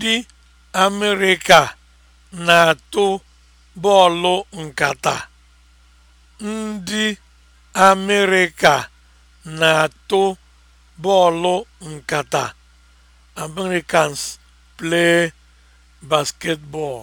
Ndị Amerịka na-atụ bọọlụ nkata. Ndị Amerịka na-atụ Americans play basketball.